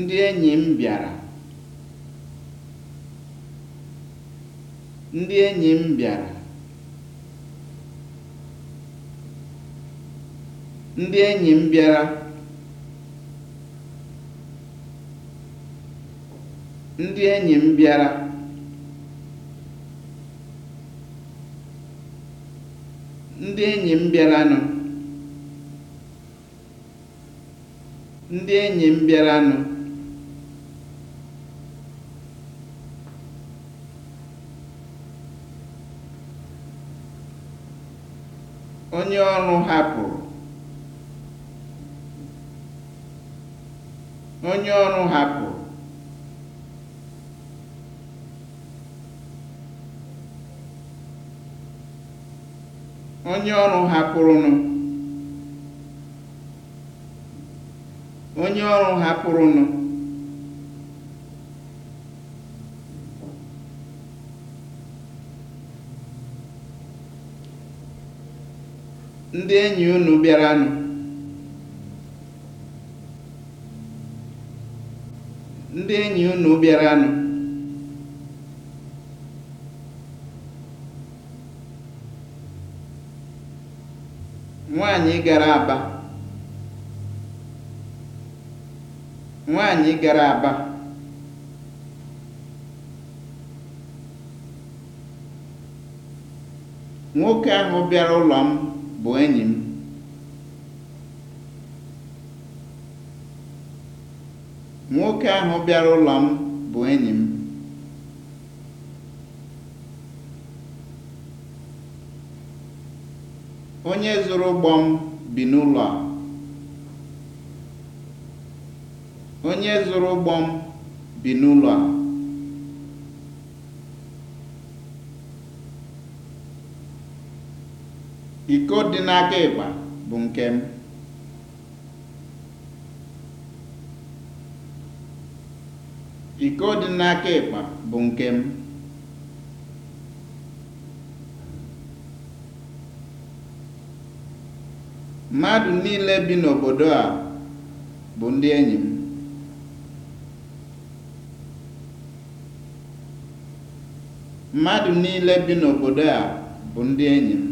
Ndị enyi m bịara. Ndị enyi m bịara. Ndị enyi m bịara. Ndị enyi m bịara. Ndị enyi m bịaranụ. Ndị enyi m bịaranụ. onye ọrụ hapụrụ onye ọrụ hapụrụnụ ndị enyi unu bịara ndị enyi nwaanyị gara aba gara aba nwoke ahụ bịara ụlọ m bụ Nwoke ahụ bịara ụlọ m bụ enyi m. Onye zụrụ ụgbọ m bi Onye zụrụ ụgbọ m bi n'ụlọ a. Iko dị n'aka ịgba bụ nke m. Mmadụ niile bi n'obodo a bụ ndị enyi m. Mmadụ niile bi n'obodo a bụ ndị enyi m.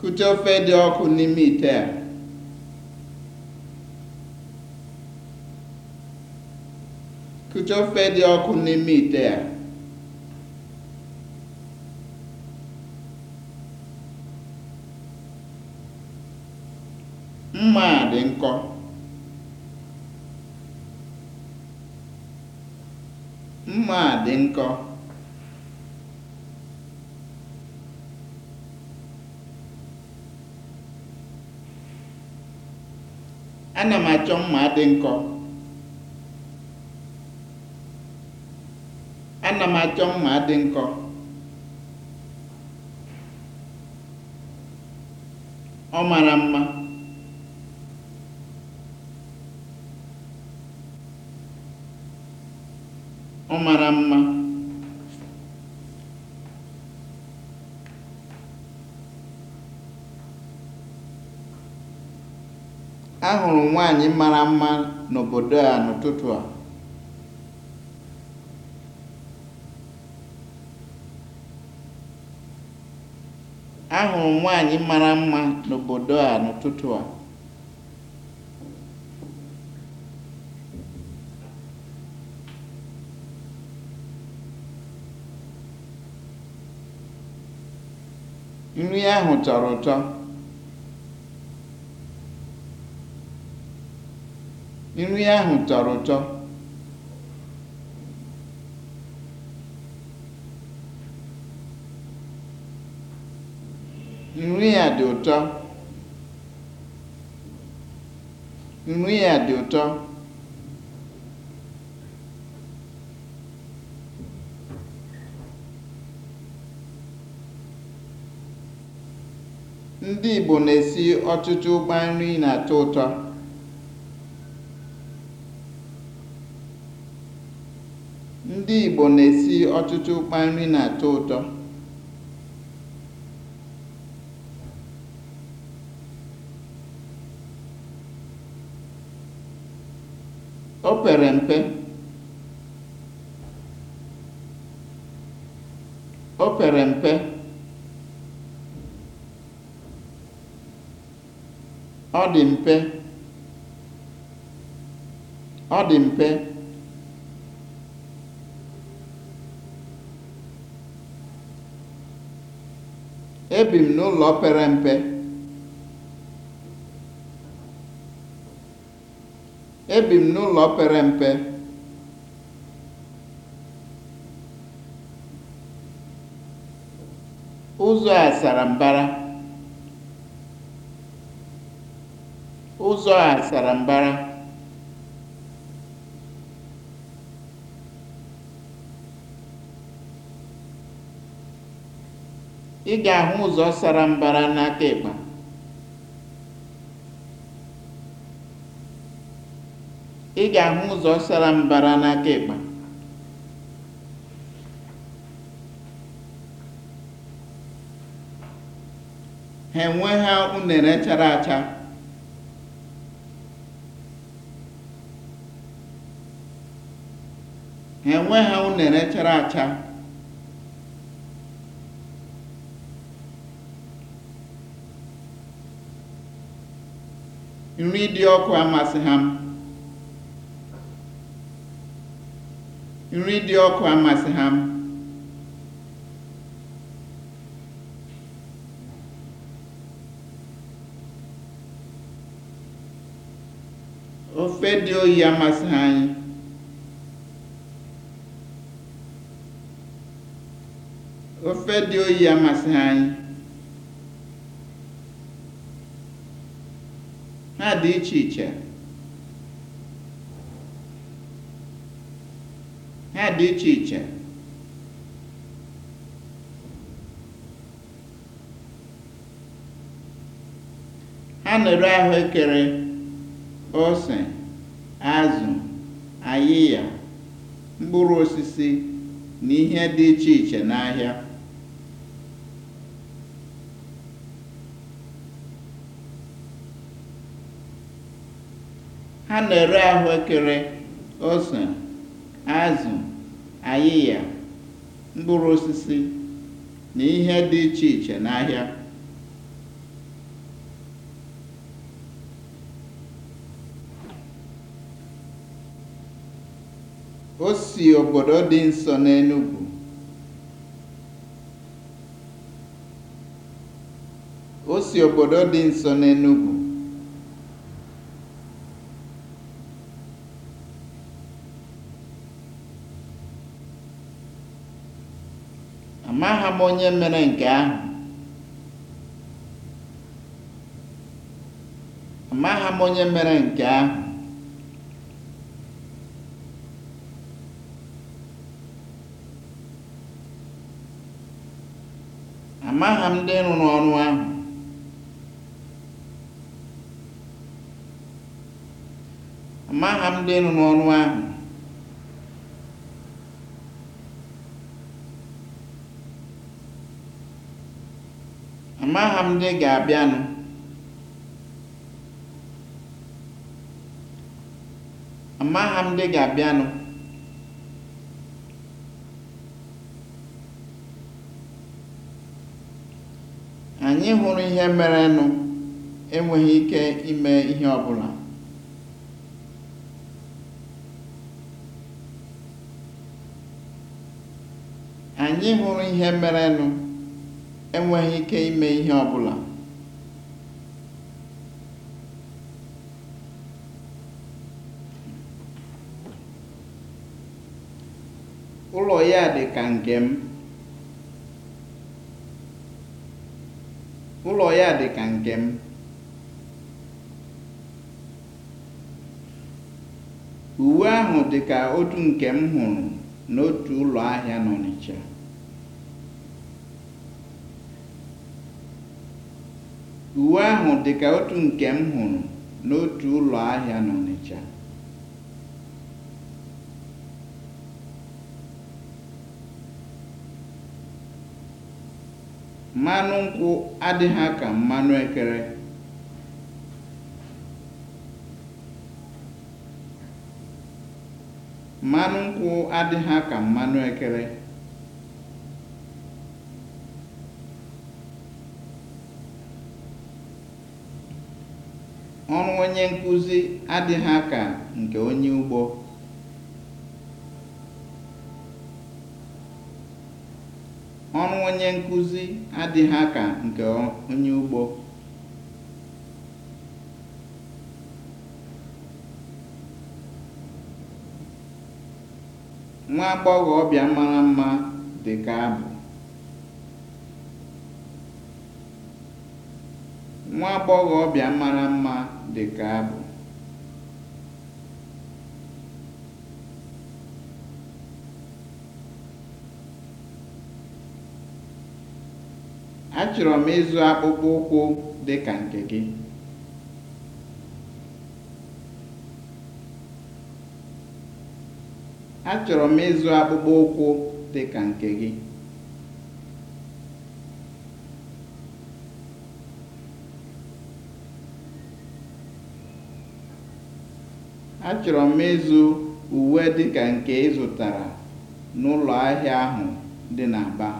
Kụchaa ofe dị ọkụ n'ime ite a. ite a. Mma a Mma a dị nkọ. ana m achọ mma dị nkọ ana m achọ mma dị nkọ ọ mara mma ọ mara mma Ahụrụ m nwaanyị mara mma n'obodo a n'ụtụtụ a. nwaanyị mara mma n'obodo a n'ụtụtụ a. Nri ahụ tọrọ ụtọ. Nri ahụ tọrọ ụtọ. Nri a dị ụtọ. Nri a dị ụtọ. Ndị Igbo na-esi ọtụtụ ụkpa nri na-atọ ụtọ. Ndị Igbo na-esi ọtụtụ ụkpa nri na-atọ ụtọ. O pere mpe. O pere mpe. Ọ dị mpe. Ọ dị mpe. Ebi m n'ụlọ pere mpe. Ebi m n'ụlọ pere mpe. Ụzọ a sara mbara. Ụzọ a sara mbara. ị ga-ahụ ụzọ sara mbara n'aka ịkpa. ị ha enwe ha unere chara unere chara acha nri dị ọkụ amasị m. nri dị ọkụ amasịghị m. ofe dị oyi amasịghị anyị ofe dị oyi amasịghị anyị ha dị iche iche ha dị iche iche na ahụekere ose azụ ayịya mkpụrụ osisi na ihe dị iche iche n'ahịa Ha na-ere ahụekere, ose, azụ, ayịya, mkpụrụ osisi, na ihe dị iche iche n'ahịa. O si obodo dị nso n'Enugwu. O obodo dị nso n'Enugwu. m onye mere nke ahụ. Amaghị m onye mere nke ahụ. Amaghị m ndị rụrụ ọrụ ahụ. Amaghị m ndị rụrụ ọrụ ahụ. Amaghị m ndị ga-abịanụ. m ndị ga-abịanụ. Anyị hụrụ ihe merenụ enweghị ike ime ihe ọbụla. Anyị hụrụ ihe merenụ. enweghị ike ime ihe ọbụla Ụlọ ya dị ka nke m. Uwe ahụ dị ka otu nke m hụrụ n'otu ụlọ ahịa n'Ọnịcha. Uwe ahụ dị ka otu nke m hụrụ n'otu ụlọ ahịa n'Ọnịcha. Mmanụ nkwụ adịghị ka mmanụ ekere. nkwụ adịghị ka mmanụ ekere. Ọrụ onye nkụzi adịghị aka nke onye ugbo. Ọrụ onye adịghị Nwa agbọghọbịa mara mma dị ka abụ. Nwa ọbịa mara mma dị ka abụ. Achọrọ m ịzụ akpụkpọ dị m ịzụ ụkwụ dị ka nke gị. Achọrọ m ịzụ uwe dịka nke ị n'ụlọ ahịa ahụ dị n'Aba.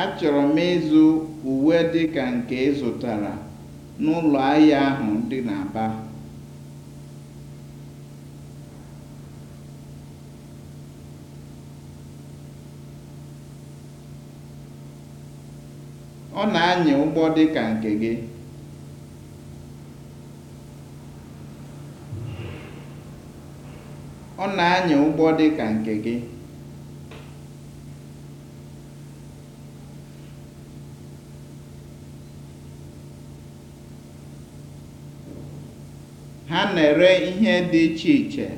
Achọrọ nke ị n'ụlọ ahịa ahụ dị n'Aba. Ọ na-anya ụgbọ dịka nke gị. Ọ na ụgbọ ka nke gị. Ha na-ere ihe dị iche iche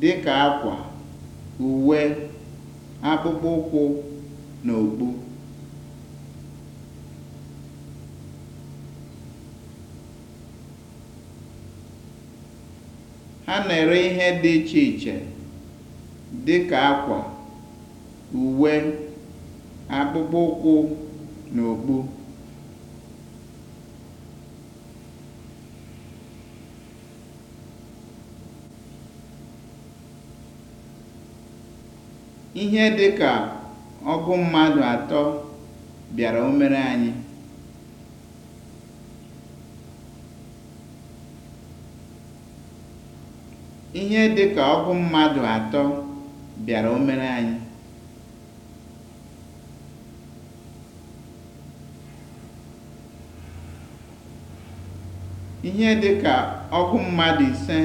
dị ka akwa, uwe, akpụkpọ ụkwụ, na okpu. A na-ere ihe dị iche iche dị ka akwa, uwe, akpụkpọ ụkwụ na okpu. Ihe dị ka ọgụ mmadụ atọ bịara omere anyị. Ihe dị ka ọgụ mmadụ atọ bịara omere anyị. Ihe dị ka ọgụ mmadụ ise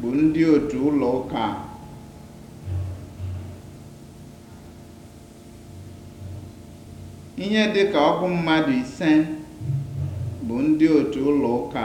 bụ ndị otu ụlọ ụka Ihe dị ka mmadụ ise bụ ndị otu ụlọ ụka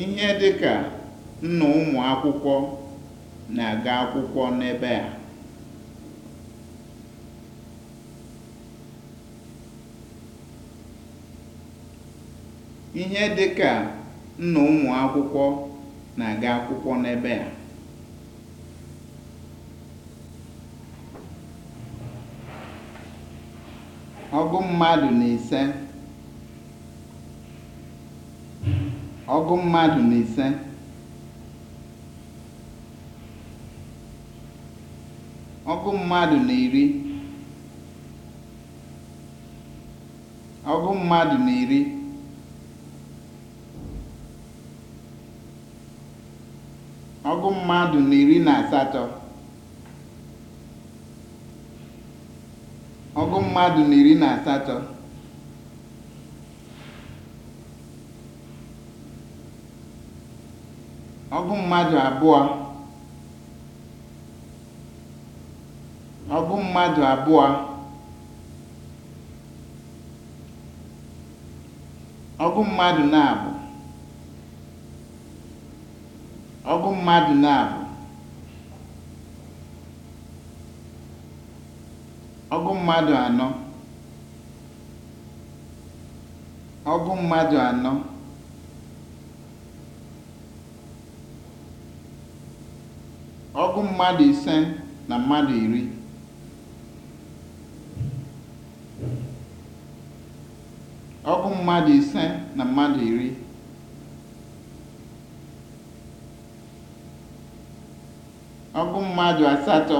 Ihe dị ka nna ụmụ akwụkwọ na-aga akwụkwọ n'ebe a. Ọgụ mmadụ na ise. ọgụ mmadụ na ise ọgụ mmadụ na iri ọgụ mmadụ na iri ọgụ mmadụ na iri na asatọ ọgụ mmadụ na iri na asatọ ọ bụ mmadụ abụọ ọ bụ mmadụ abụọ ọgụ mmadụ na-abụ ọgụ mmadụ na-abụ ọgụ mmadụ anọ ọgụ mmadụ anọ Ọgụ mmadụ ise na mmadụ iri. Ọgụ mmadụ ise na mmadụ iri. Ọgụ mmadụ asatọ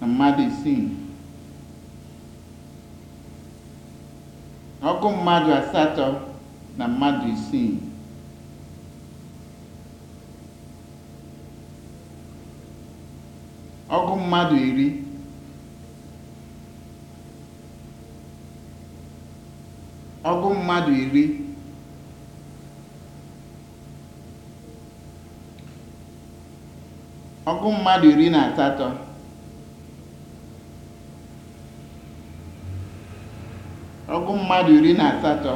na mmadụ isii. Ọgụ mmadụ asatọ na mmadụ isii. ọgụ mmadụ iri ọgụ mmadụ iri ọgụ mmadụ iri na asatọ ọgụ mmadụ iri na asatọ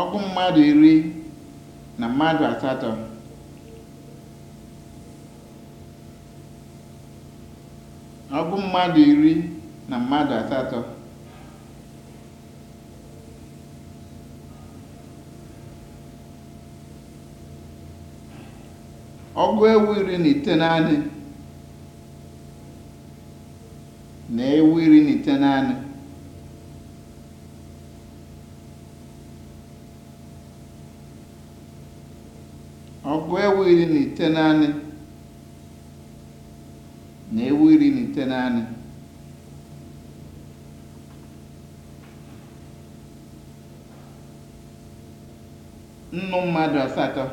ọgụ mmadụ iri na mmadụ asatọ ọgwụ mmadụ iri na mmadụ asatọ ọgụ ewu iri na ite naanị na ewu iri na ite naanị ọgụ ewu iri na ite naanị na ewu iri na ite naanị nnụ mmadụ asatọ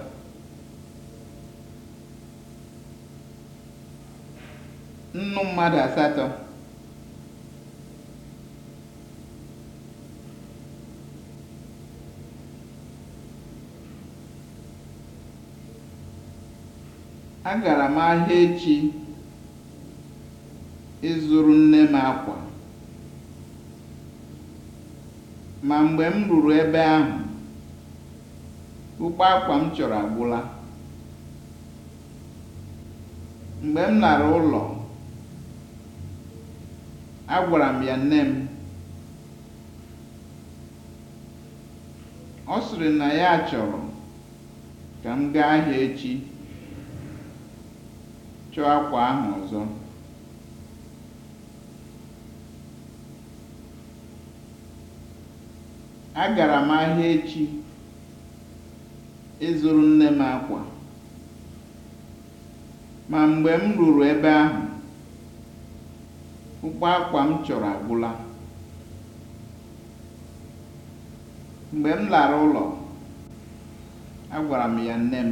nnụ mmadụ asatọ Agara m ahịa echi ịzụrụ nne m akwa, ma mgbe m ruru ebe ahụ, ukpo akwa m chọrọ agwụla. Mgbe m lara ụlọ, agwara m ya nne m. Ọ sịrị na ya chọrọ ka m gaa ahịa echi. Chọọ akwa ahụ ọzọ. Agara m ahịa echi ịzụrụ nne m akwa, ma mgbe m ruru ebe ahụ, ụgbọ akwa m chọrọ agwụla. Mgbe m lara ụlọ, agwara m ya nne m.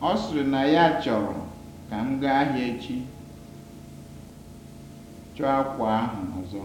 Ọ sịrị na ya chọrọ ka m gaa ahịa echi chọọ akwa ahụ ọzọ.